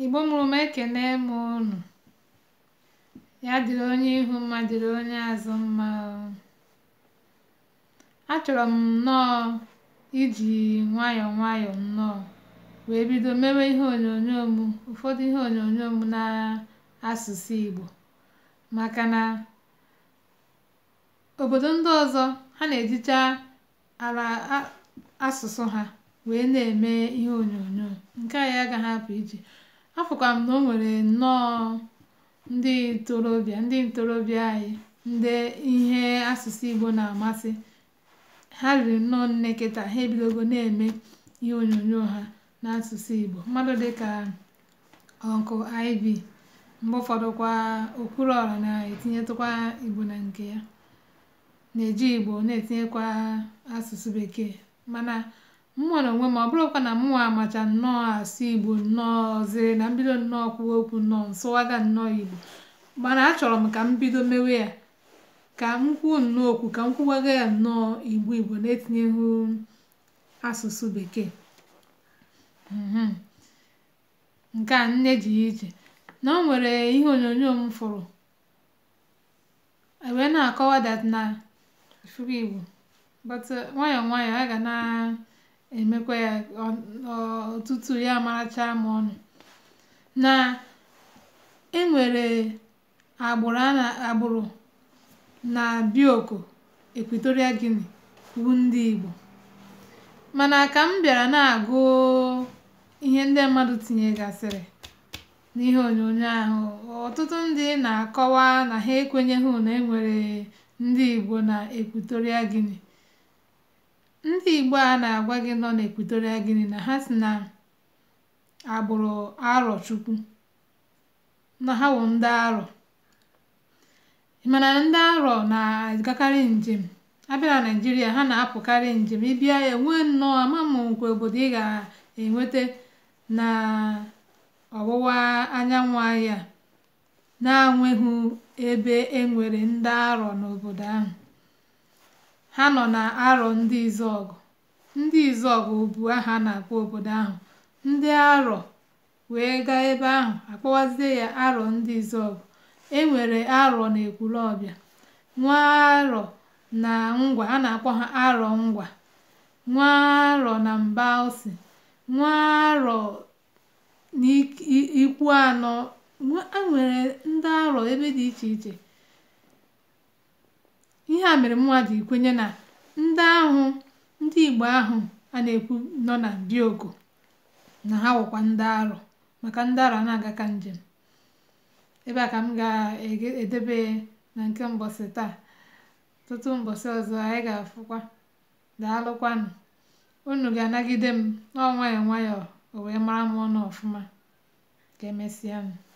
igbo mụrụ m ekene mụ unu ya dịrị onye ihu mma dịrị onye azụ mma achọrọ m nnọọ iji nwayọọ nwayọọ nnọọ wee bido mewe ihe onyonyo m ụfọdụ ihe onyonyo m na asụsụ igbo maka na obodo ndị ọzọ ha na-ejicha ala asụsụ ha wee na-eme ihe onyonyo nke a ya agaghị apụ iji afụkwa m na o nwere nnọọ ndị ntorobịa ndị ntorobịa anyị ndị ihe asụsụ Igbo na-amasị ha riri nnọọ nne kịta ha ebidogo na-eme ihe onyonyo ha n'asụsụ Igbo mmadụ dịka Uncle Iv mgbe ụfọdụkwa Okwuluọra na-etinyetụkwa Igbo na nke ya na-eji Igbo na-etinyekwa asụsụ Bekee mana m nwere onwe m ọ bụrụkwa na mụnwa amacha nnọọ asụ igbo nnọọziri na mbido nnọọ kwuwa okwu nnọọ nsụwaga nnọọ igbo mana achọrọ m ka m bido mewe ya ka m kwuo nnọọ okwu ka m kwuwaga ya nnọọ igbo igbo na-etinyeghị asụsụ bekee mhm. nke a nne ji ije na o nwere ihe onyonyo m fụrụ e wee na-akọwa that na ifugo igbo but nwayọọ nwayọọ a ga na emekwa ya ọtụtụ ya marachaa m ọnụ na enwere agbụrụ na Bioko Equatorial gini bụ ndị Igbo mana ka m bịara na-agụ ihe ndị mmadụ tinyegasịrị n'ihe onyonyo ahụ ọtụtụ ndị na-akọwa na ha ekwenyeghị na enwere ndị Igbo na Equatorial gini ndị Igbo a na-agwa gị nọ n'Ekwitoria Gini na ha si na agbụrụ chukwu na ha wụ ndị Arọ mana ndị Arọ na-agakarị njem abịa na Naịjirịa ha na-apụkarị njem ịbịa enwe nnọọ ama m nkwe obodo ị ga-enweta na ọwụwa anyanwụ ahịa na-enweghị ebe e nwere ndị Arọ n'obodo ahụ Ha nọ na-arọ ndị Izọgụ ndị Izọgụ bụ aha na-akpọ obodo ahụ. Ndị Arọ wee gaa ebe ahụ akpọwazie ya Arọ ndị Izọgụ. E nwere Arọ ọbịa Nwa Arọ na Ngwa a na-akpọ ha Arọ Ngwa, Nwa Arọ na Mgbaụsị, Nwa Arọ n'Ikwu Anọ. nwere ndị Arọ ebe dị iche iche. ihe a mere mmadụ ji na ndị ahụ ndị Igbo ahụ a na-ekwu nọ na Biogo na ha wụkwa ndị arụ maka ndị arụ a na-aga ka njem ebe a ka m ga-edebe na nke mbọsị taa tụtụ mbọsị ọzọ anyị ga-afụkwa daalụkwanụ unu ga-anagide m n'ọnwayọọ nwayọọ o wee mara m ọnụ ọfụma ka emesịa m